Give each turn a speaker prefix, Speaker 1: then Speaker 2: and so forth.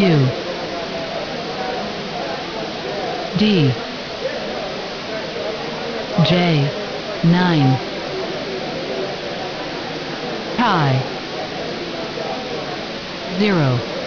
Speaker 1: U D J 9 Pi 0